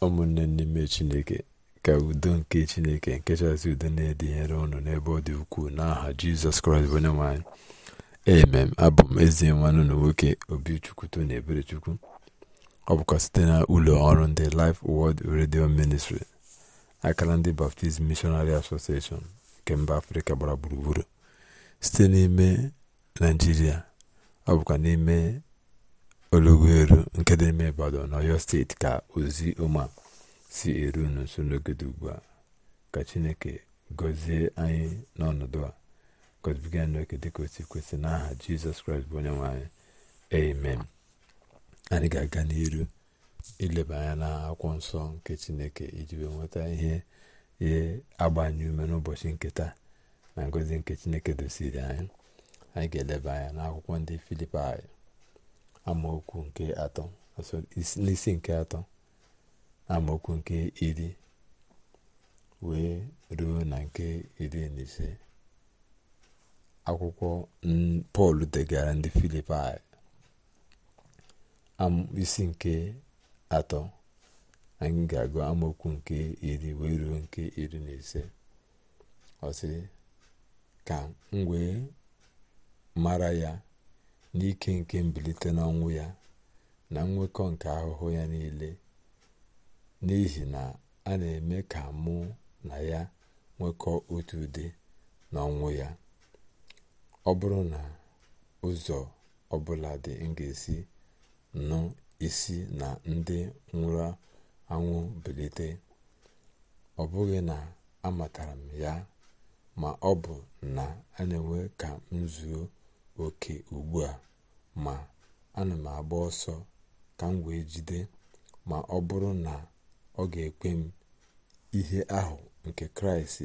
ụmụnne n'ime chineke ka udo nke chineke nke udo na-edinyere ọnụ n'ebe ọ dị ukwuu n'aha jizọs kraịst bụ onye nwanyị emem abụ m ezi nwanne na nwoke obichukwuto na eberechukwu ọ bụkwa site na ụlọ ọrụ ndị Life Word redio Ministry akara ndị Baptist Missionary Association nke mba afrịka gbara gburugburu site n'ime naijiria ọ bụkwa n'ime Oluweru nke dị n'ime Ibadan na oyo steeti ka ozi ọma si eru unu nso n'oge ugbu a ka Chineke gọzie anyị n'ọnọdụ a gọzibiga anyị n'oke dịka o si kwesị n'aha Jizọs Kraịst bụ onye nwe anyị amen anyị ga-aga n'iru ileba anya na akwụkwọ nsọ nke Chineke iji wee nweta ihe ihe agbanye ume n'ụbọchị nke na ngozi nke Chineke dosiri anyị anyị ga-eleba anya n'akwụkwọ ndị Filipaị amaokwu nke atọ n'isi nke atọ amaokwu nke iri wee ruo na nke iri na ise akwụkwọ pọl degara ndị filipai isi nke atọ anyị ga-agụ amaokwu nke iri wee ruo nke iri na ise ọ ka m mara ya n'ike nke mbilite n'ọnwụ ya na nwekọ nke ahụhụ ya niile n'ihi na a na-eme ka mụ na ya nwekọ otu ụdị n'ọnwụ ya ọ bụrụ na ụzọ ọbụla dị m ga-esi nụ isi na ndị nwụrụ anwụ bilite ọ bụghị na amatara m ya ma ọ bụ na a na-enwe ka m zuo oke ugbu a ma ana m agba ọsọ ka m wee jide ma ọ bụrụ na ọ ga-ekwe m ihe ahụ nke kraịst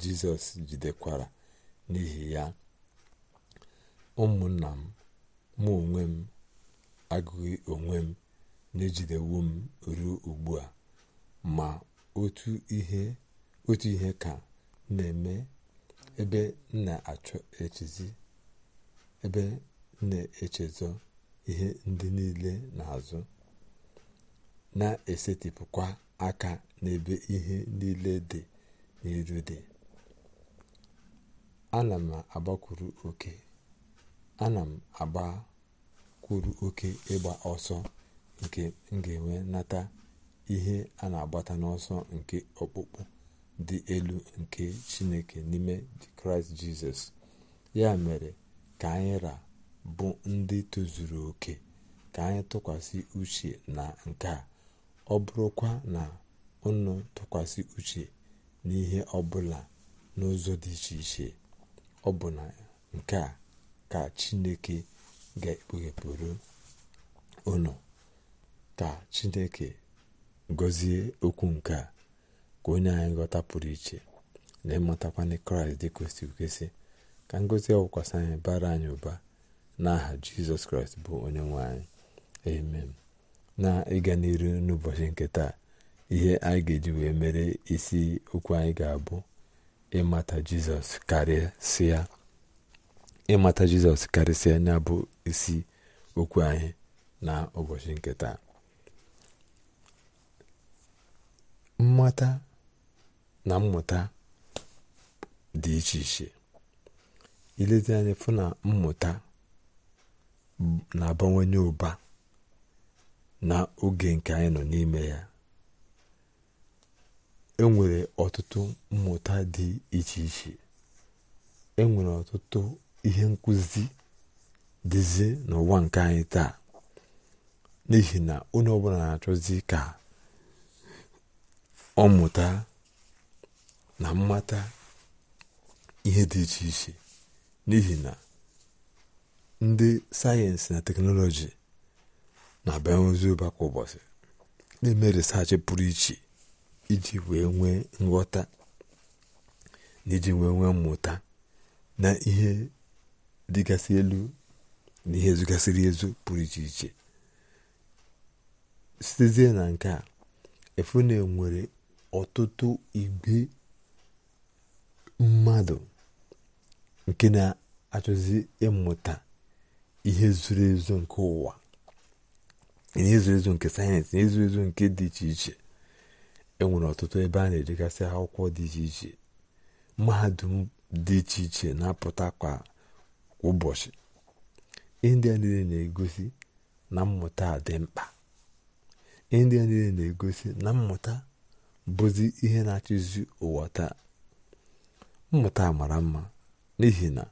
jizọs jidekwara n'ihi ya ụmụnna m mụ onwe m agụghị onwe m na-ejidewo m ruo ugbu a ma otu ihe otu ihe ka na-eme ebe m na-achọ echizi ebe na-echezọ ihe ndị niile n'azụ na-esetịpụkwa aka n'ebe ihe niile dị n'iru dị ana m agbakwuru oke m agbakwuru oke ịgba ọsọ nke m ga-enwe nata ihe a na-agbata n'ọsọ nke ọkpụkpụ dị elu nke chineke n'ime kraịst jizọs ya mere ka anyị ra bụ ndị tozuru oke ka anyị tụkwasị uche na nke a ọ bụrụkwa na ụnụ tụkwasị uche n'ihe ọ bụla n'ụzọ dị iche iche ọ bụ na nke a ka chineke ga-ekpughepụrụ ụnụ ka chineke gọzie okwu nke a ka onye anyị ghọta pụrụ iche na ịmatakwana kraịst dị kwesịrị kwesị ka ngozi ọkwasị anyị bara anyị ụba n'aha jizọs kraịst bụ onye nwe anyị amen na ịga n'iru n'ụbọchị nke taa ihe anyị ga-eji wee mere isi okwu anyị ga-abụ ịmata jizọs karịsịa ịmata jizọs karịsịa ya bụ isi okwu anyị na ụbọchị nke taa mmata na mmụta dị iche iche ileta anyị fụ na mmụta na-abawanye ụba na oge nke anyị nọ n'ime ya enwere ọtụtụ mmụta dị iche iche enwere ọtụtụ ihe nkụzi dịzi n'ụwa nke anyị taa n'ihi na onye ọbụla na-achọzi ka ọ mụta na mmata ihe dị iche iche n'ihi na ndị sayensị na teknọlọji na-abịa ozi ụba ụbọchị na-eme resachị pụrụ iche iji wee nwee nghọta na iji wee nwee mmụta na ihe dịgasị elu na ihe zụgasịrị ezu pụrụ iche iche sitezie na nke a efune nwere ọtụtụ igbe mmadụ nke na-achọzi ịmụta ihe zuru ezu nke ụwa ihe zuru ezu nke sayensị ihe zuru ezu nke dị iche iche enwere ọtụtụ ebe a na-edegasị akwụkwọ dị iche iche mahadum dị iche iche na-apụta kwa ụbọchị ndị a niile na-egosi na mmụta dị mkpa ndị niile na-egosi na mmụta bụzi ihe na-achịzi ụwa taa mmụta mara mma n'ihi na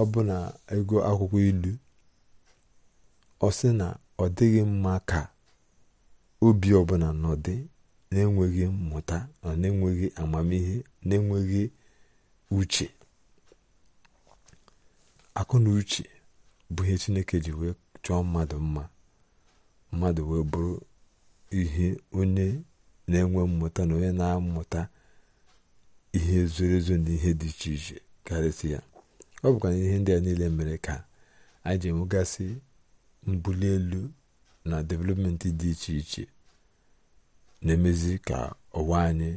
ọ bụ ego akwụkwọ ilu ọ sị na ọ dịghị mma ka obi ọbụla nọdị na-enweghị mmụta na na-enweghị amamihe na-enweghị uche akụ na uche bụ ihe chineke ji wee chọọ mmadụ mma mmadụ wee bụrụ ihe onye na-enwe mmụta na onye na-amụta ihe zoro ezo na ihe dị iche iche karịsịa ọ bụkwa ihe ndị a niile mere ka anyị ji enwegasị mbuli elu na developmenti dị iche iche na-emezi ka ụwa anyị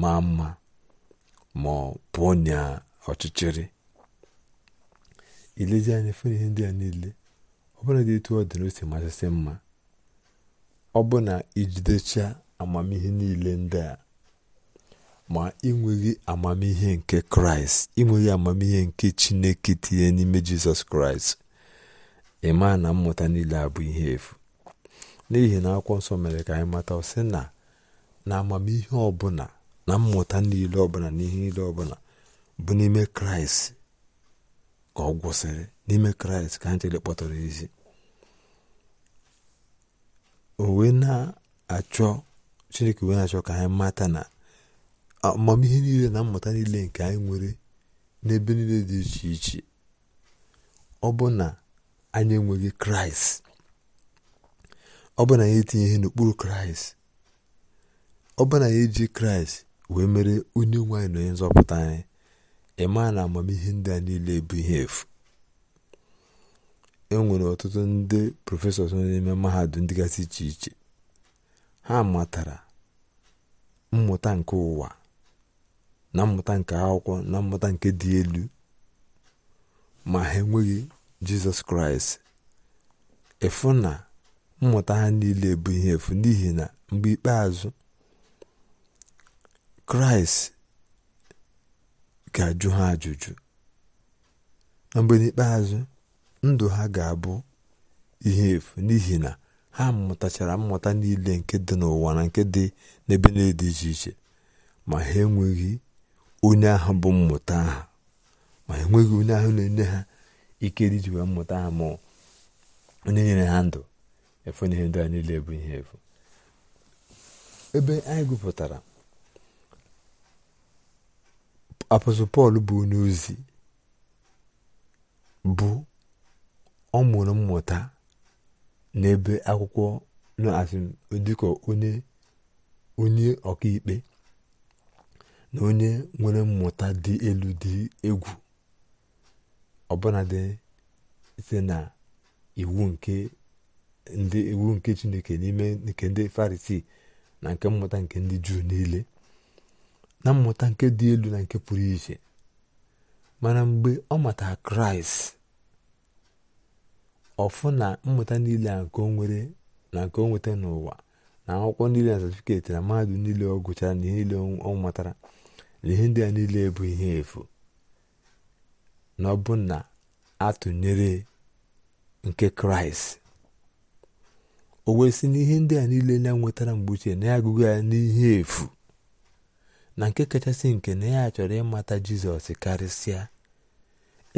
maa mma ma pụọ na ọchịchịrị ilezi anya fụ ihe ndị a niile ọ dị etu ọ dị na o si masịsị mma ọ bụ na ijidecha amamihe niile ndị a ma ịnweghị amamihe nke kraịst ịnweghị amamihe nke chineke tinye n'ime jizọs kraịst ịma na mmụta niile abụ ihe efu n'ihi na akwụkwọ nsọ mere ka anyị mata sị na na amamihe ọbụla na mmụta niile ọbụla na ihe niile ọbụla bụ n'ime kraịst ka ọ gwụsịrị n'ime kraịst ka anyị kpọtara ezi o na-achọ chineke wee na-achọ ka anyị mata na amamihe niile na mmụta niile nke anyị nwere n'ebe niile dị iche iche ọ bụ na anyị enweghị kraịst ọ bụ na anyị etinye ihe n'okpuru kraịst ọ bụ na anyị eji kraịst wee mere onye nwe anyị na onye nzọpụta anyị ịma na amamihe ndị a niile bụ ihe efu e nwere ọtụtụ ndị prọfesọ nọ n'ime mahadum dịgasị iche iche ha matara mmụta nke ụwa na mmụta nke akwụkwọ na mmụta nke dị elu ma ha enweghị jizọs kraịst efu na mmụta ha niile bụ ihe efu n'ihi na mgbe ikpeazụ kraịst ga-ajụ ha ajụjụ na mgbe n'ikpeazụ ndụ ha ga-abụ ihe efu n'ihi na ha mụtachara mmụta niile nke dị n'ụwa na nke dị n'ebe na dị iche iche ma ha enweghị onye ahụ bụ mmụta ahụ ma enweghị onye ahụ na-enye ha ike dị mmụta ha ma onye nyere ha ndụ efu na ihe ndị a niile bụ ihe efu ebe anyị gụpụtara apọstọl pọl bụ onye ozi bụ ọ mụrụ mmụta n'ebe akwụkwọ na-asị dịka onye onye ọkaikpe na onye nwere mmụta dị elu dị egwu dị site na iwu nke ndị iwu nke chineke n'ime nke ndị farisii na nke mmụta nke ndị juu niile na mmụta nke dị elu na nke pụrụ iche mana mgbe ọ matara kraịst ọfụ na mmụta niile a nke na nke o nweta n'ụwa na akwụkwọ niile na satifiketi na mahadum niile ọ gụchara na ihe niile ọ matara ihe ndị a niile bụ ihe efu na ọ bụ na atụnyere nke kraịst o wee si na ihe ndị a niile na-enwetara mgbe uche na ya agụgụ ya n'ihe efu na nke kachasị nke na ya chọrọ ịmata jizọs karịsịa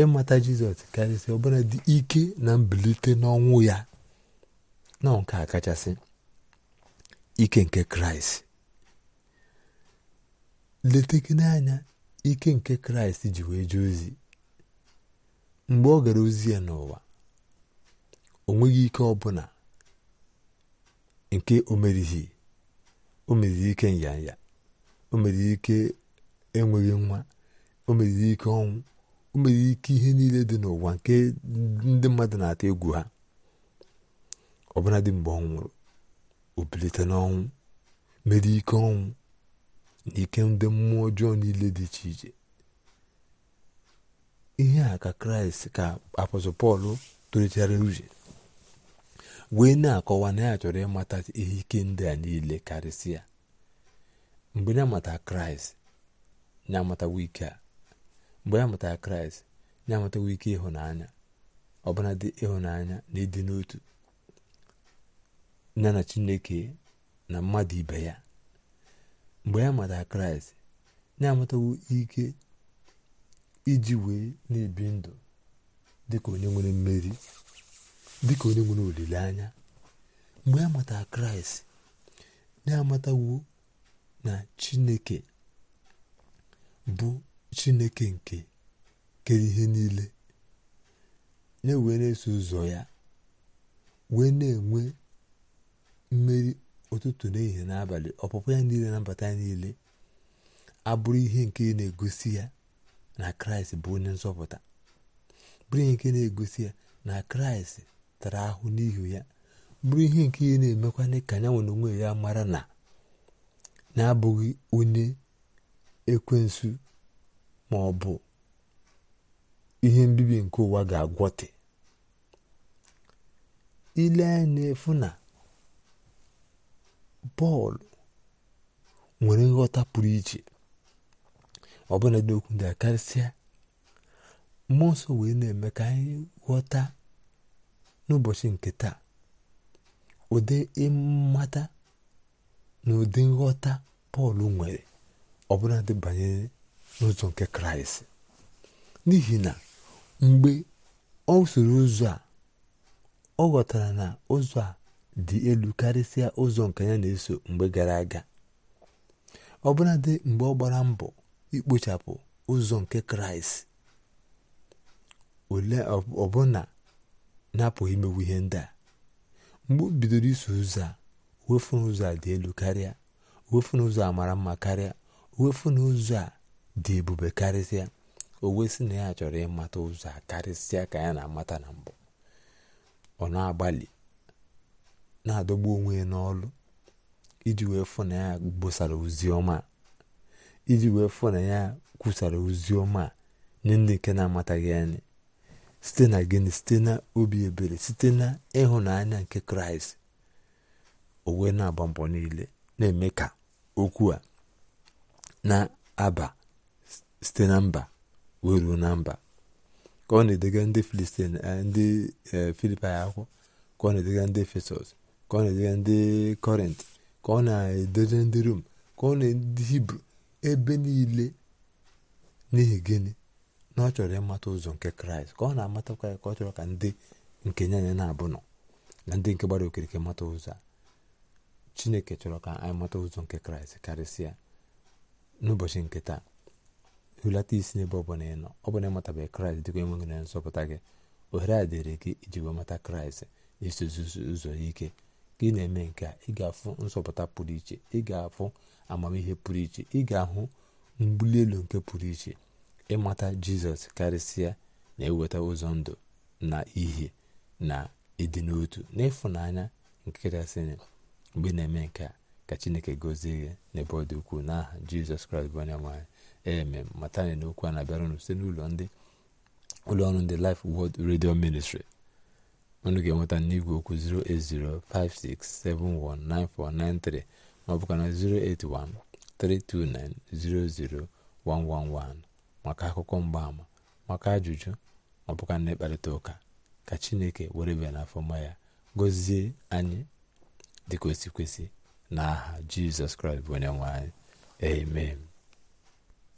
ịmata jizọs karịsịa ọbụla dị ike na mbilite n'ọnwụ ya na nke a kachasị ike nke kraịst gị n'anya ike nke kraịst ji wee jee ozi mgbe ọ gara ozi ya n'ụwa o nweghị ike ọbụla nke o merighi o meriri ike nyanya o meriri ike enweghị nwa o meriri ike ọnwụ o meriri ike ihe niile dị n'ụwa nke ndị mmadụ na-atụ egwu ha ọbụladị mgbe ọ nwụrụ o bilite n'ọnwụ mere ike ọnwụ na ike ndị mmụọ ọjọọ niile dị iche iche ihe a ka kraịst ka apọstọl pọl uche wee na-akọwa na ya chọrọ ịmata ihe ike ndị a niile karịsịa mgbe ya mata kraịst ya amatawa ike a mgbe ya matara kraịst ya amatawa ike ịhụnanya ọbụna ịhụnanya na ịdị n'otu ya na chineke na mmadụ ibe ya mgbe ya mata kraịst na-amatawo ike iji wee na-ebi ndụ dịka onye nwere mmeri dịka onye nwere olileanya mgbe ya mata kraịst na-amatawo na chineke bụ chineke nke kere ihe niile ya wee na-eso ụzọ ya wee na-enwe mmeri ụtụtụ na ehihie n'abalị ọpụpụ ya niile na mbata niile abụrụ ihe nke na-egosi ya na kraịst bụ onye nzọpụta bụrụ ihe nke na-egosi ya na kraịst tara ahụ n'ihu ya bụrụ ihe nke ihe na emekwa ka ya nwere onwe ya mara na na-abụghị onye ekwensu ma ọ bụ ihe mbibi nke ụwa ga-agwọte ile anya efu na bọọlụ nwere nghọta pụrụ iche ọbụla dị okwu ndị a karịsịa mmụọ nsọ wee na-eme ka anyị ghọta n'ụbọchị nke taa ụdị ịmata na ụdị nghọta Pọl nwere ọbụla dị n'ụzọ nke Kraịst n'ihi na mgbe ọ soro ụzọ a ọ ghọtara na ụzọ a dị elu karịsịa ụzọ nke ya na-eso mgbe gara aga ọbụladị mgbe ọ gbara mbọ ikpochapụ ụzọ nke kraịst ole ọbụna na-apụghị imewu ihe ndị a mgbe o bidoro iso ụzọ a wefu ụzọ a dị elu karịa wefu ụzọ a mara mma karịa wefu ụzọ a dị ebube karịsịa o wee na ya chọrọ ịmata ụzọ a karịsịa ka ya na-amata na mbụ ọ na-agbalị na-adọgbu onwe ya n'ọlụ iji wee fụ na ya gbosara ozi ọma iji wee fụ na ya kwusara ozi nye ndị nke na-amataghị anyị site na gịnị site na obi ebere site na ịhụnanya nke kraịst o na-agba mbọ niile na-eme ka okwu a na-aba site na mba wee ruo na mba ka ọ na-edega ndị filistin eh, ndị eh, akwụkwọ ka ọ na-edega ndị efesọs ka ọ na-edere ndị kọrint ka ọ na-edere ndị rom ka ọ na-edere hibru ebe niile n'ihi gịnị na ọ chọrọ ịmata ụzọ nke kraịst ka ọ na-amatakwa ya ka ọ chọrọ ka ndị nke nye anya na-abụ nọ na ndị nke gbara okirike mata ụzọ chineke chọrọ ka anyị mata ụzọ nke kraịst karịsịa n'ụbọchị nke taa hulata isi n'ebe ọ bụla ị nọ ọ bụla ịmatabeghị kraịst dịka enweghị na nzọpụta gị ohere a dịrị gị iji wee mata kraịst na-esozi ụzọ ya ike ka ị na-eme nke a ị ga-afụ nsọpụta pụrụ iche ị ga-afụ amamihe pụrụ iche ị ga-ahụ mbuli elu nke pụrụ iche ịmata jizọs karịsịa na-eweta ụzọ ndụ na ihe na ịdị n'otu n'ịfụnanya nke kachasịrị mgbe na-eme nke a ka chineke gozie gị n'ebe ọ dị ukwuu n'aha jizọs kraịst bụ onye nwanyị eme matani n'okwu a na-abịara site n'ụlọ ndị ụlọọrụ ndị lif wod redio Ministry unu ga-enweta n'igwe okwu 08056719493 maọbụka na 08132900111 maka akụkọ mgbaama maka ajụjụ maọbụ na ịkparịta ụka ka chineke were bịa ma ya gozie anyị dịka o n'aha jizọs kraịst bụ onye nwe anyị amen